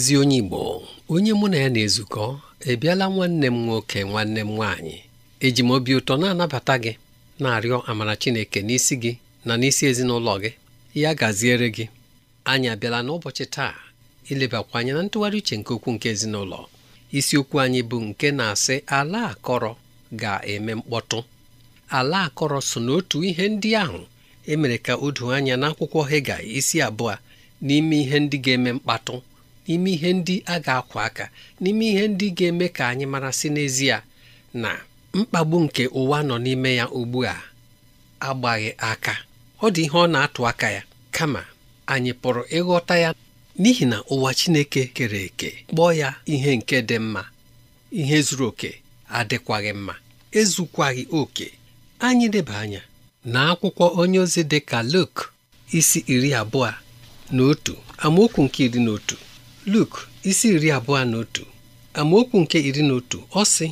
ezi onye Igbo onye mụ na ya na-ezukọ ebiala nwanne m nwoke nwanne m nwaanyị eji m obi ụtọ na-anabata gị na-arịọ amara Chineke n'isi gị na n'isi ezinụlọ gị ya gaziere gị anyị abịala n'ụbọchị taa ilebakwa anya na ntụgharị uche nke okwu nke ezinụlọ isiokwu anyị bụ nke na-asị ala akọrọ ga-eme mkpọtụ ala akọrọ so n'otu ihe ndị ahụ emere ka o anya n'akwụkwọ Hega isi abụọ n'ime ihe ndị ga-eme mkpatụ ime ihe ndị a ga-akwa aka n'ime ihe ndị ga-eme ka anyị mara si n'ezie na mkpagbu nke ụwa nọ n'ime ya ugbu a agbaghị aka ọ dị ihe ọ na-atụ aka ya kama anyị pụrụ ịghọta ya n'ihi na ụwa Chineke kere eke kpọọ ya ihe nke dị mma ihe zuru oke adịkwaghị mma ezukwaghị oke anyị leba anya na akwụkwọ onye ozi dị ka Luk isi iri abụọ na otu amaokwu nke iri na otu Luk isi iri abụọ na otu amaokwu nke iri na otu ọ sị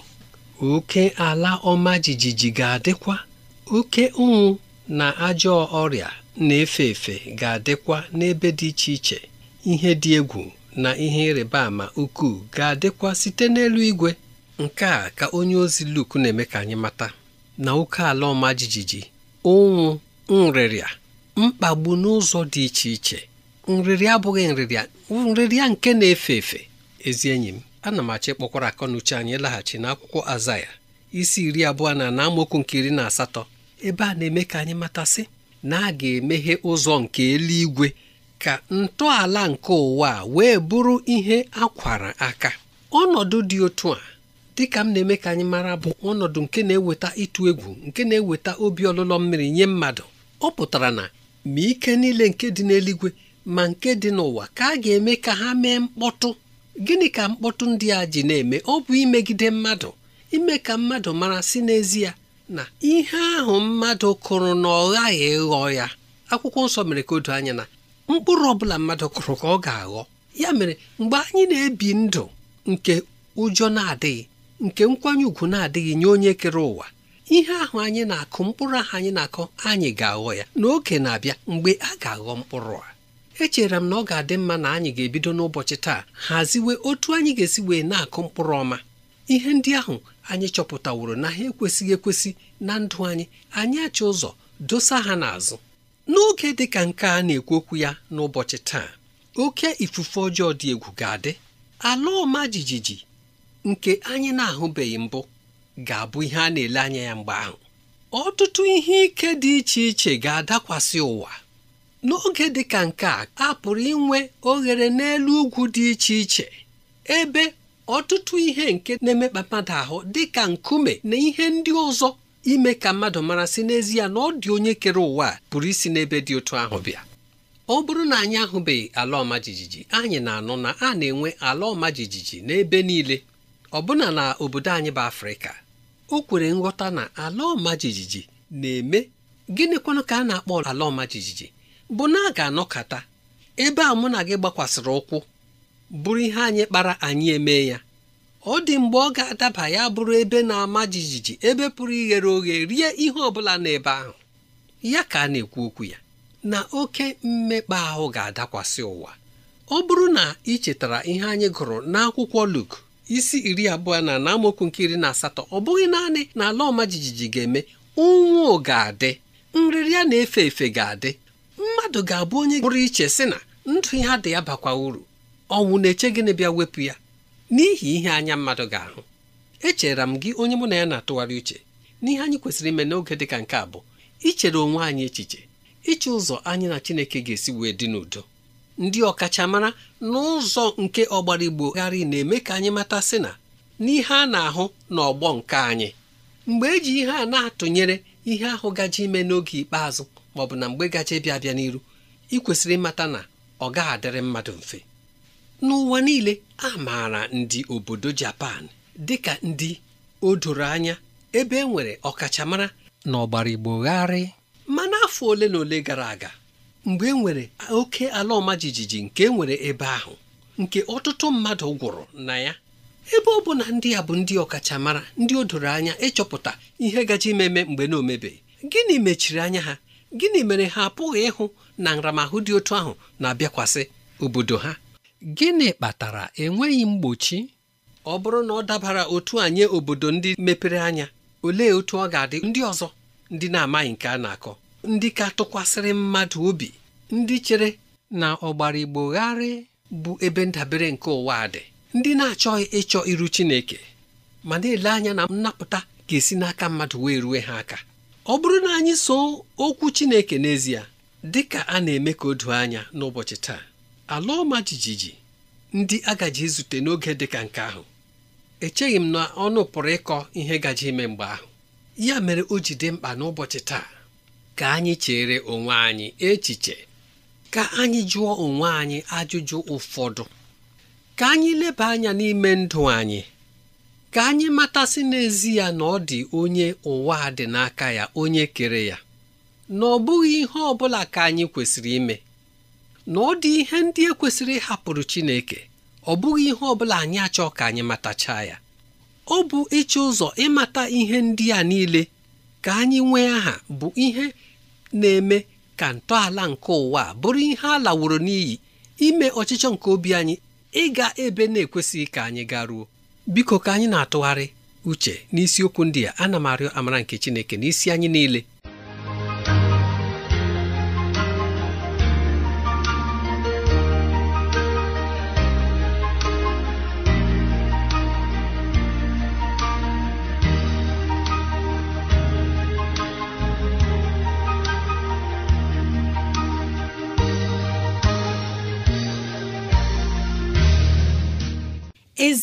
oke ala ọma jijiji ga-adịkwa oke ụnwụ na ajọ ọrịa na-efe efe ga-adịkwa n'ebe dị iche iche ihe dị egwu na ihe ịrịba ama ukwuu ga-adịkwa site n'elu igwe nke a ka onye ozi Luk na-eme ka anyị mata na oke ala ọma jijiji ụnwụ nrịrịa mkpagbu n'ụzọ dị iche iche nrịrịa abụghị nrịrịa nrịrịa nke na-efe efe ezi enyi m ana m achọ ịkpọkwara akọnuche anyị laghachi n'akwụkwọ azaya isi iri abụọ na na amaokwu nke iri na asatọ ebe a na-eme ka anyị matasị na a ga-emeghe ụzọ nke eluigwe ka ntọala nke ụwa wee bụrụ ihe akwara aka ọnọdụ dị otu a dịka m na-eme ka anyị mara bụ ọnọdụ nke na-eweta ịtụ egwu nke na-eweta obi ọlụlọ mmiri nye mmadụ ọ pụtara na ma ike niile nke dị n'eluigwe ma nke dị n'ụwa ka a ga-eme ka ha mee mkpọtụ gịnị ka mkpọtụ ndị a ji na-eme ọ bụ imegide mmadụ ime ka mmadụ mara si n'ezie na ihe ahụ mmadụ kụrụ na ọ ghaghị ịghọ ya akwụkwọ nsọ mere ka anya na mkpụrụ ọbụla mmadụ kụrụ ka ọ ga-aghọ ya mere mgbe anyị na-ebi ndụ nke ụjọ na-adịghị nke nkwanye ùgwù na-adịghị nye onye kere ụwa ihe ahụ anyị na-akụ mkpụrụ ahụ anyị na-akụ anyị ga-aghọ ya n'oge na-abịa mgbe a ga-aghọ mkpụrụ a echere m na ọ ga-adị mma na anyị ga-ebido n'ụbọchị taa haziwe otu anyị ga-esi wee na-akụ mkpụrụ ọma ihe ndị ahụ anyị chọpụtaworo na ha ekwesịghị ekwesị na ndụ anyị anyị achọ ụzọ dosa ha n'azụ n'oge dị ka nke a na-ekwu okwu ya n'ụbọchị taa oke ifufe ọjọọ dị egwu ga-adị ala ọma jijiji nke anyị na-ahụbeghị mbụ ga-abụ ihe a na-ele anya ya mgbe ahụ ọtụtụ ihe ike dị iche iche ga-adakwasị ụwa n'oge dị ka nke a a pụrụ inwe oghere n'elu ugwu dị iche iche ebe ọtụtụ ihe nke na-emekpa mmadụ ahụ dị ka nkume na ihe ndị ọzọ ime ka mmadụ mara si n'ezie na ọ dị onye kere ụwa a pụrụ isi n'ebe dị otu ahụ bịa ọ bụrụ na anyị ahụbeghị ala ọma jijiji anyị na-anụ na a na-enwe ala ọma jijiji n'ebe niile ọbụna na obodo anyị bụ Afrịka o kwere nghọta na ala ọma jijiji na-eme gịnịkwanụ ka a na-akpọ ala ọma jijiji bụ na a ga anọkata ebe a mụ na gị gbakwasịrị ụkwụ bụrụ ihe anyị kpara anyị eme ya ọ dị mgbe ọ ga-adaba ya bụrụ ebe na-ama jijiji ebe pụrụ ighere oghe rie ihe ọ bụla n'ebe ahụ ya ka a na-ekwu okwu ya na oke mmekpa ahụ ga-adakwasị ụwa ọ bụrụ na ị chetara ihe anyị gụrụ n'akwụkwọ Luk isi iri abụọ na na amaokwu nke iri na asatọ ọ bụghị naanị na ala ọma jijiji ga-eme ụnwụ ga-adị nrịrịa na-efe efe ga-adị mmadụ ga-abụ onye pụrụ iche sị na ndụ ihe dị ya bakwa uru ọnwụ na-eche gịnị bịa wepụ ya n'ihi ihe anya mmadụ ga-ahụ echera m gị onye mụ na ya na-atụgharị uche n'ihe anyị kwesịrị ime n'oge dị ka nke a bụ ichere onwe anyị echiche iche ụzọ anyị na Chineke ga-esi wee dị n'udo ndị ọkachamara n'ụzọ nke ọgbara igbo gharị na-eme ka anyị mata sị na n'ihe a na-ahụ n'ọgbọ nke anyị mgbe eji ihe a na-atụnyere ihe ahụ gaji ime n'oge ikpeazụ ma ọ bụ na mgbe gacha ịbịa abịa n'iru ị kwesịrị ịmata na ọ gaghị adịrị mmadụ mfe n'ụwa niile a maara ndị obodo Japan dịka ndị o doro anya ebe e nwere ọkachamara na ọgbara Igbo gharị mana afọ ole na ole gara aga mgbe e nwere oke ala ọma jijiji nke e nwere ebe ahụ nke ọtụtụ mmadụ gwụrụ na ya ebe ọ bụ na ndị a bụ ndị ọkachamara ndị o doro anya ịchọpụta ihe gaji imeme mgbe na omebe gịnị mechiri anya ha gịnị mere ha apụghị ịhụ na nramahụ dị otu ahụ na-abịakwasị obodo ha gịnị kpatara enweghị mgbochi ọ bụrụ na ọ dabara otu nye obodo ndị mepere anya olee otu ọ ga-adị ndị ọzọ ndị na-amaghị nke a na-akọ ndị ka tụkwasịrị mmadụ obi ndị chere na ọgbara gharị bụ ebe ndabere nke ụwa dị ndị na-achọghị ịchọ iru Chineke ma na-ele anya na nnapụta ga-esi n'aka mmadụ wee rue ha aka ọ bụrụ na anyị so okwu Chineke n'ezie dị ka a na-eme ka o doo anya n'ụbọchị taa ala ọma jijiji ndị agaji zute n'oge dị ka nke ahụ echeghị m na ọnụ pụrụ ịkọ ihe gaji ime mgbe ahụ ya mere o ji dị mkpa n'ụbọchị taa ka anyị chere onwe anyị echiche ka anyị jụọ onwe anyị ajụjụ ụfọdụ ka anyị leba anya n'ime ndụ anyị ka anyị matasị n'ezi ya na ọ dị onye ụwa dị n'aka ya onye kere ya na ọ bụghị ihe ọ bụla ka anyị kwesịrị ime na ọ dị ihe ndị e kwesịrị ịhapụrụ Chineke ọ bụghị ihe ọ bụla anyị achọ ka anyị matacha ya ọ bụ ịchọ ụzọ ịmata ihe ndị a niile ka anyị nwee aha bụ ihe na-eme ka ntọala nke ụwa bụrụ ihe a laworo n'iyi ime ọchịchọ nke obi anyị ịga ebe na-ekwesịghị ka anyị garuo biko ka anyị na-atụgharị uche n'isiokwu ndị a ana m arịọ amara nke Chineke n'isi anyị niile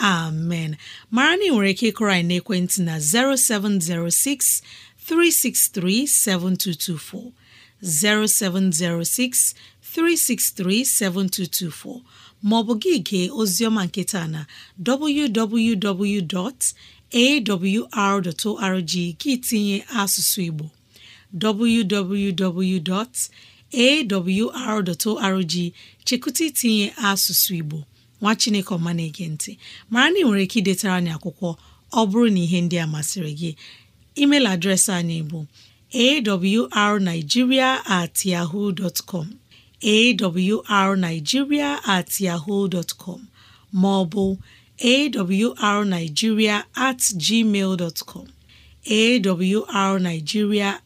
amen mara na ị nwere ike ịkụrọ anyị ekwentị na 0706 363 7224 0706 363 7224 maọbụ gị gee oziọma nketa na www.awr.org gị tinye asụsụ Igbo www.awr.org chekụta itinye asụsụ Igbo nwa chineke ọma na-ege ntị mara na ị nwere ike idetara anyị akwụkwọ ọ bụrụ na ihe ndị a masịrị gị email adreesị anyị bụ arigiria at com arigiria at com ma ọ bụ at gmail com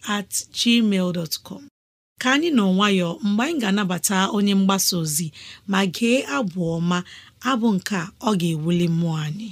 at gmail ka anyị nọ nwayọọ mgbe anyị ga-anabata onye mgbasa ozi ma gee abụ ọma abụ nke a ọ ga-ewuli mmụọ anyị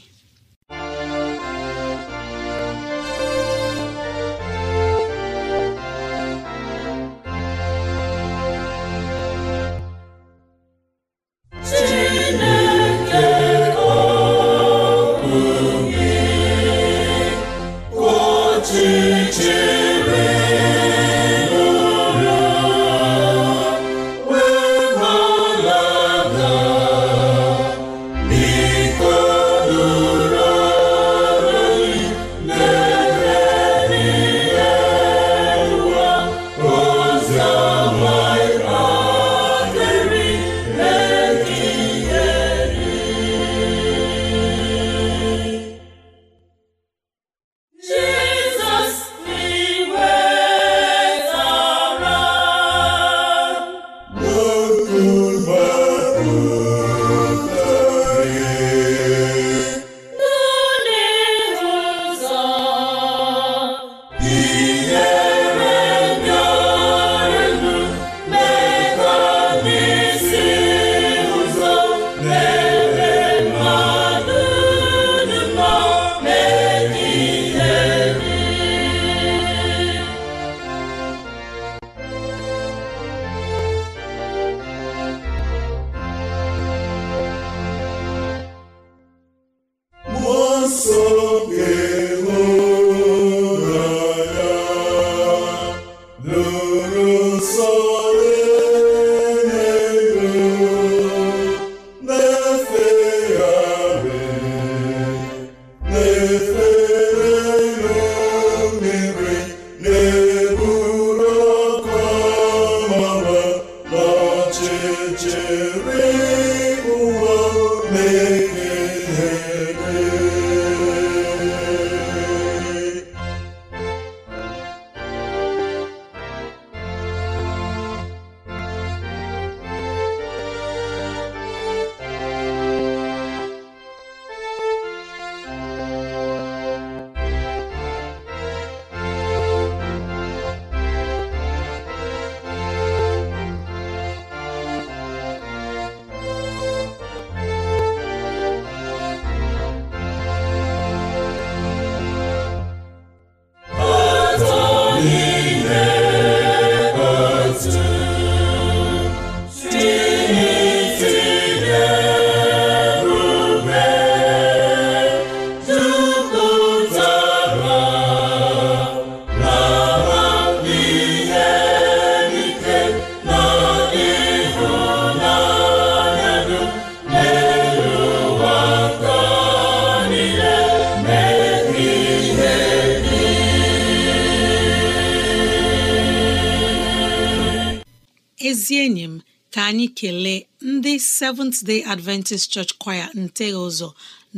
Seventh Day Adventist Church Choir nteghi ụzọ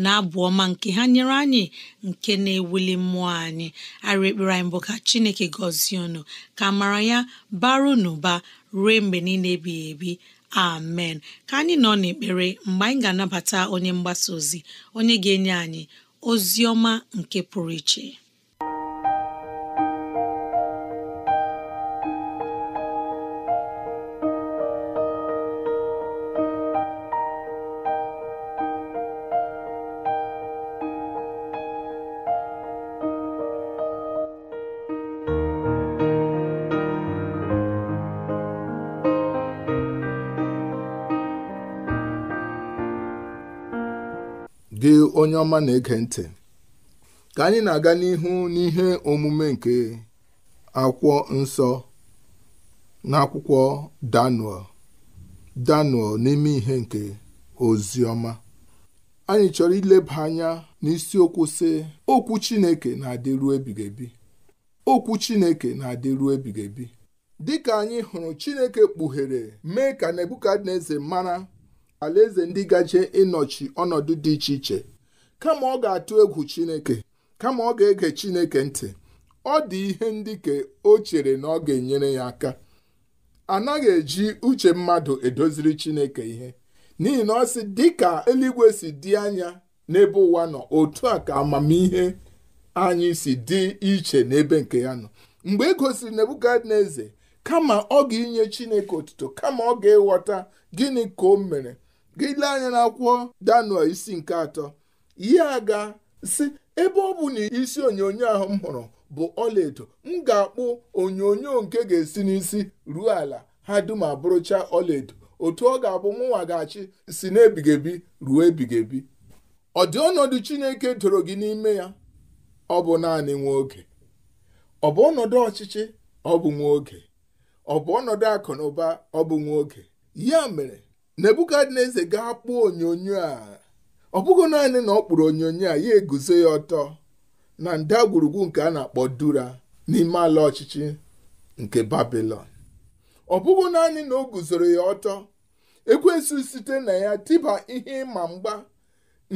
na-abụ ọma nke ha nyere anyị nke na-ewuli mmụọ anyị ara ekpere anyị bụ ka Chineke gọzie unu ka mara ya baro n'ụba ruo mgbe niile ebighị ebi amen ka anyị nọ n'ekpere mgbe anyị ga-anabata onye mgbasa ozi onye ga-enye anyị ozi ọma nke pụrụ iche onye ọma na-ege ntị ka anyị na-aga n'ihu n'ihe omume nke akwụkwọ nsọ n'akwụkwọ Daniel Daniel n'ime ihe nke oziọma. anyị chọrọ ileba anya n'isiokwu sị okwu Chineke na-adịru ebighị ebi okwu Chineke na-adịru ebighị ebi dịka anyị hụrụ Chineke kpughere mee ka Nebukadneza mara alaeze ndị gaje ịnọchi ọnọdụ dị iche iche kama ọ ga-atụ egwu chineke kama ọ ga-ege chineke ntị ọ dị ihe ndị ka o chere na ọ ga-enyere ya aka anaghị eji uche mmadụ edoziri chineke ihe n'ihi na ọ sị ka eluigwe si dị anya n'ebe ụwa nọ otu a ka amamihe anyị si dị iche n'ebe nke ya nọ mgbe e gosiri nebukadneze kama ọ ga-inye chineke otuto kama ọ ga-eghọta gịnị ka o mere gị lee anya akwụkwọ danuel isi nke atọ ya aga, si ebe ọ bụ na isi onyonyo ahụ m hụrụ bụ ọlaedo m ga-akpụ onyonyo nke ga-esi n'isi ruo ala ha dum abụrụcha ọlaedo otu ọ ga-abụ mụnwa ga-achị si n'ebigebi ruo ebigebi ọ dị ọnọdụ Chineke doro gị n'ime ya ọ bụ naanị nwa oge ọ bụ ọnọdụ ọchịchị ọ bụ nwa oge ọ bụ ọnọdụ akụ na ụba ọ bụ nwa oge ya mere Nebukadneza ga-akpụ onyonyo a ọ bụghị naanị na ọ kpụrụ onyonyo a ya eguzo ya ọtọ na ndagwurugwu nke a na-akpọ dura n'ime ala ọchịchị nke babilon ọ bụghị naanị na o guzoro ya ọtọ ekwesị site na ya tịba ihe ịma mgba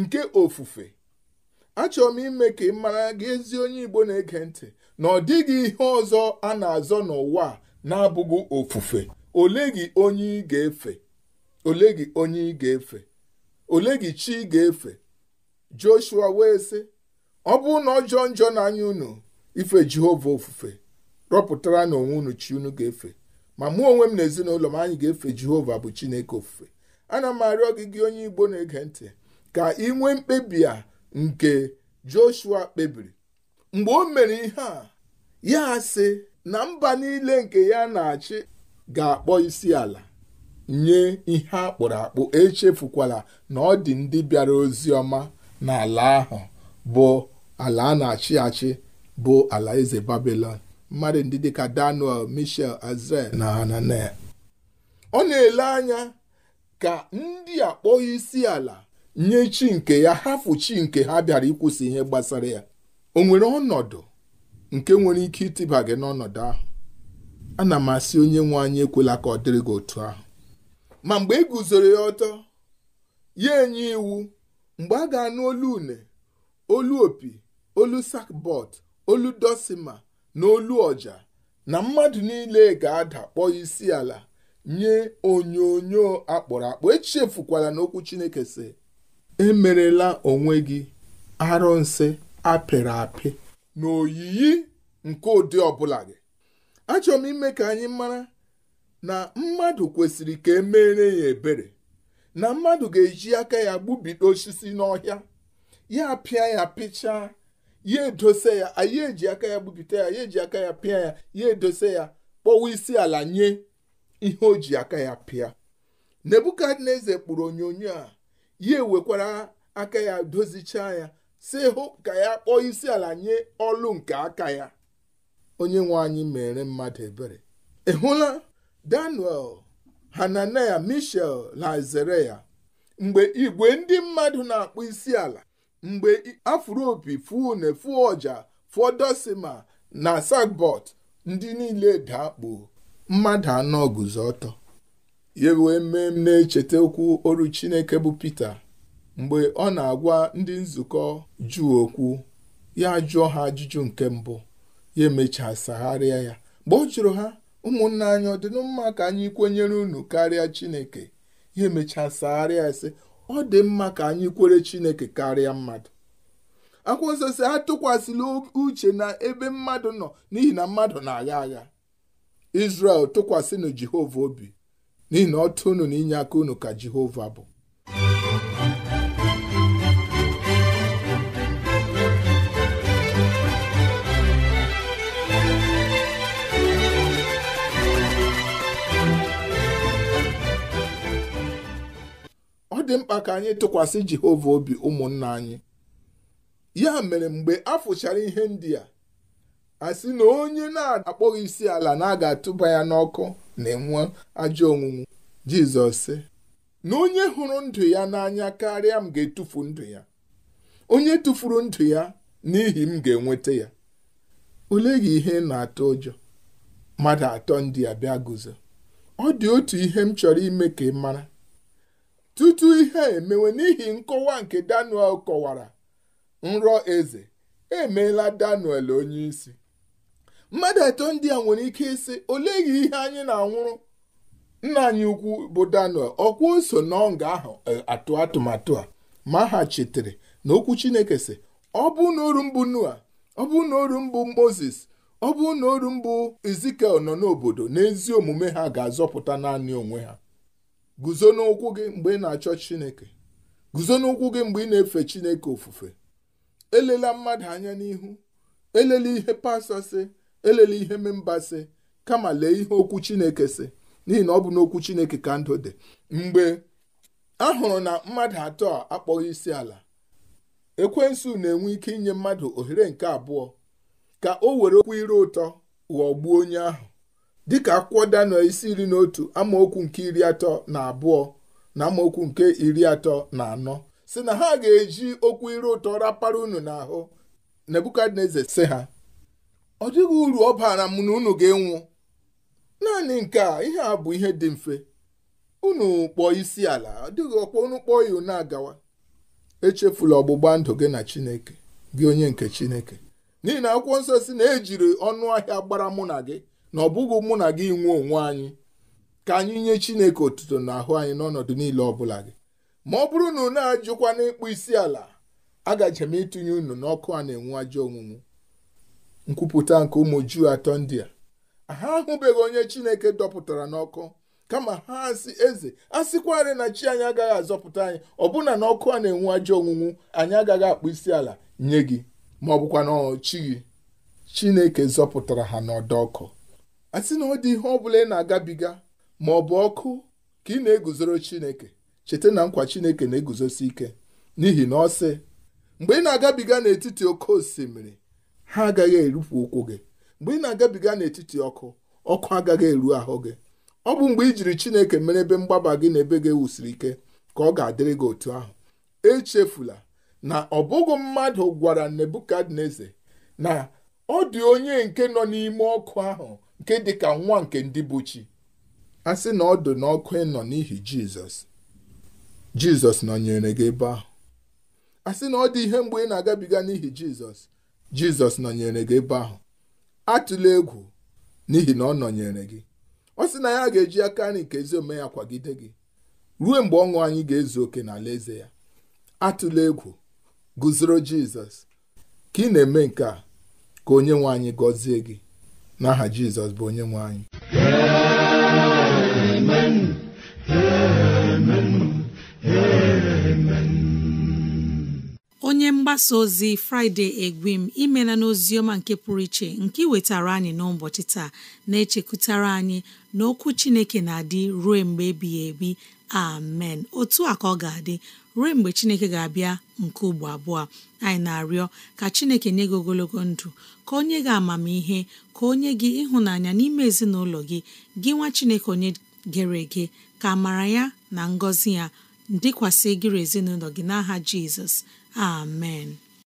nke ofufe achọrọ m ime ka ị mara gị ezi onye igbo na-ege ntị na ọ dịghị ihe ọzọ a na-azọ n'ụwa na-abụghị ofufe ole gị onye ị ga-efe ole gị onye ị ga-efe ole gị chi ga-efe joshua wee sị ọ bụrụ na ọjọọ njọ n'anya unu ife jehova ofufe rọpụtara na onwe unu chi unu ga-efe ma mụ onwe m na ezinụlọ m anyị ga-efe jehova bụ chineke ofufe ana m arịọ gị gị onye igbo na-ege ntị ka ị nwee mkpebi a nke joshua kpebiri mgbe o mere ihe a ya sị na mba niile nke ya na-achị ga-akpọ isi ala nye ihe akpụrụ akpụ echefukwala na ọ dị ndị bịara ozi ọma n'ala ahụ bụ ala a na-achị achị bụ ala eze babilon mmadụ ndị dịka daniel michel azrel na hananel ọ na-ele anya ka ndị akpọghị isi ala nye chi nke ya hafu chi nke ha bịara ịkwụsị ihe gbasara ya o nwere ọnọdụ nke nwere ike ịtịba gị n'ọnọdụ ahụ ana m asị onye nwe anyị ekwela ka ọ dịrị gị otu ahụ ma mgbe e guzoro ya ọtọ ya enye iwu mgbe a ga-anụ olu une olu opi olu sakbọt olu dosima na olu ọja na mmadụ niile ga-ada kpọọ isi ala nye onyonyo akpọrọ akpọ echefukwala n'okwu chineke si emerela onwe gị arụnsị apịrị apị na oyiyi nke ụdị ọbụla gị achọrọ m ime ka anyị mara na mmadụ kwesịrị ka emere ya ebere na mmadụ ga-eji aka ya gbubido osisi n'ọhịa ya pịa ya pịchaa ya edose ya anyị eji aka ya gbubite ya ya eji aka ya pịa ya ya edose ya kpọwa isi ala nye ihe o ji aka ya pịa nebukadneza kpụrụ onyonyo a ya ewekwara aka ya dozichaa ya si hụ ka ya kpọọ isi ala nye ọlụ nke aka ya onye nwe anyị mere mmadụ ebere ị hụla daniel hananaya mishel na azaraya mgbe igwe ndị mmadụ na-akpụ isi ala mgbe afropi fune fuoja fudosima na sagbot ndị niile dakpo mmadụ anọ guzo ọtọ ya wee mee m na-echeta okwu oru chineke bụ pita mgbe ọ na-agwa ndị nzukọ juu okwu ya jụọ ha ajụjụ nke mbụ ya emechaa sagharịa ya mgbe ọ jụrụ ha ụmụnna anyị ọ dị mma ka anyị kwenyere unu karịa chineke ihe ya arịa ese ọ dị mma ka anyị kwere chineke karịa mmadụ akwụkwọ nsọ si atụkwasịla uche na ebe mmadụ nọ n'ihi na mmadụ na-agha agha Israel tụkwasịnụ Jehova obi n'ihi na ọ tụnụ na inye aka unu ka Jehova bụ dị mkpa ka anyị tụkwasị Jehova obi ụmụnna anyị ya mere mgbe a fụchara ihe ndị a a sị na onye na-akpọghị isi ala na a ga-atụba ya n'ọkụ na-enwe ajọ onwunwu Jizọs sị na onye hụrụ ndụ ya n'anya karịa m ga-etufu ndụ ya onye tụfuru ndụ ya n'ihi m ga-enweta ya ole gị ihe na-atụ ụjọ mmadụ atọ ndị a bịa guzo ọ dị otu ihe m chọrọ ime ka ị mara tutu ihe emewe n'ihi nkọwa nke Daniel kọwara nrọ eze emeela Daniel onyeisi mmadụ atọ ndị a nwere ike ịsị olee ihe anyị na-anwụrụ nna anyị ukwu bụ Daniel ọkwa so n'ọnga ahụ e, atụ atụmatụ a ma ha chetere na okwu Chineke sị ọ bụ na mbụ Noa ọ bụ na mbụ Moses ọ bụ na mbụ Ezikiel nọ n'obodo n'ezi omume ha ga-azọpụta naanị onwe ha guzo n'ụkwụ gị mgbe ị na-achọ chineke guzo n'ụkwụ gị mgbe ị na-efe chineke ofufe elela mmadụ anya n'ihu elela ihe pastọ sị elela ihe memba sị kama lee ihe okwu chineke si n'ihi na ọ bụ n'okwu chineke ka ndụ dị mgbe a hụrụ na mmadụ atọ a akpọghị isi ala ekwensu na-enwe ike inye mmadụ ohere nke abụọ ka o were okwu ire ụtọ ghọgbuo onye ahụ dịka akwụkwọ Daniel isi iri na otu amaokwu nke iri atọ na abụọ na amaokwu nke iri atọ na anọ si na ha ga-eji okwu ire ụtọ rapara unu n'ahụ Nebukadneza si ha ọ dịghị uru ọ bara m na unu ga-enwu naanị nke a ihe a bụ ihe dị mfe unu kpọọ isi ala ọ dịghị ọkpọ unu kpọọ ya unu agawa echefula ọgbụgba ndụ gị na Chineke gị onye nke Chineke n'ihi na akwụkwọ nsọ si na ejiri ọnụ ahịa gbara mụ na gị na ọ bụghị mụ na gị nwee onwe anyị ka anyị nye Chineke otuto ahụ anyị n'ọnọdụ niile ọ bụla gị ma ọ bụrụ na unu ajụkwa n'ịkpụ isi ala agaje m ịtụnye unu n'ọkụ a na-enwu ajọ onwunwu nkwupụta nke ụmụ Juu atọ ndị a ha ahụbeghị onye Chineke dọpụtara n'ọkụ kama ha asị eze a sịkwarị na chi anyị agaghị azọpụta anyị ọbụna na ọkụ a na-enwu ajọ onwunwu anyị agaghị akpụ isi ala nye gị ma ọ bụkwa chi gị Chineke zọpụtara ha n'ọdọ ọkụ a sị na ọ dị ihe ọ bụla ị na-agabiga ma ọ bụ ọkụ ka ị na-eguzoro Chineke cheta na nkwa Chineke na-eguzosi ike n'ihi na ọ sị mgbe ị na-agabiga n'etiti oke osimiri ha agaghị erupụ ụkwụ gị mgbe ị na-agabiga n'etiti ọkụ ọkụ agaghị eru ahụ gị ọ bụ mgbe i jiri Chineke mere ebe mgbaba gị na ebe gị ewusiri ike ka ọ ga-adịrị gị otu ahụ echefula na ọ bụghị mmadụ gwara Nebukadneza na ọ dị onye nke nọ n'ime ọkụ ahụ nke dị ka nwa nke ndị bụ chi a sị na ọ dụ n'ọkụ ịnọ n'ihi jizọs jizọs nọnyere gị ebe ahụ a sị na ọ dị ihe mgbe ị na-agabiga n'ihi jizọs jizọs nọnyere gị ebe ahụ atụla egwu n'ihi na ọ nọnyere gị ọ sị na ya ga-eji aka nri nke ezi ome ya kwagide gị ruo mgbe ọṅụ anyị ga-ezu oke n'ala eze ya atụla egwu guzoro jizọs ka ị na-eme nke a ka onye nwe anyị gọzie gị n'aha jizọs bụ onye nwe anyị onye mgbasa ozi fraịde egwim imela n'ozi ọma nke pụrụ iche nke iwetara anyị n'ụbọchị taa na-echekwutara anyị na okwu chineke na-adị ruo mgbe ebighị ebi amen otu a ka ọ ga-adị ruo mgbe chineke ga-abịa nke ugbo abụọ anyị na-arịọ ka chineke nye gị ogologo ndụ ka onye gị amamihe ka onye gị ịhụnanya n'ime ezinụlọ gị gị nwa chineke onye gere ege ka mara ya na ngọzi ya dịkwasị gịrị ezinụlọ gị n'aha jizọs amen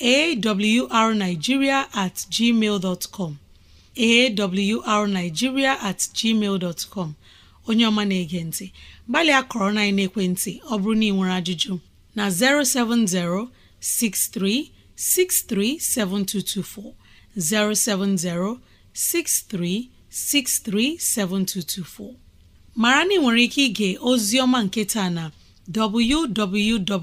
AwrNigeria at gmail.com AwrNigeria at gmail.com Onyeọma na-ege ntị, gbalịa kọrọ na-ekwentị ọ bụrụ na ị nwere ajụjụ na-07063 637224 070 6363 7224. Mara na ị nwere ike ịga ozi ọma nke taa na www.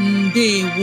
ndewo